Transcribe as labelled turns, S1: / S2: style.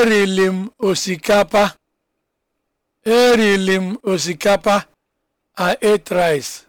S1: eriri m osikapa eriri m osikapa I ate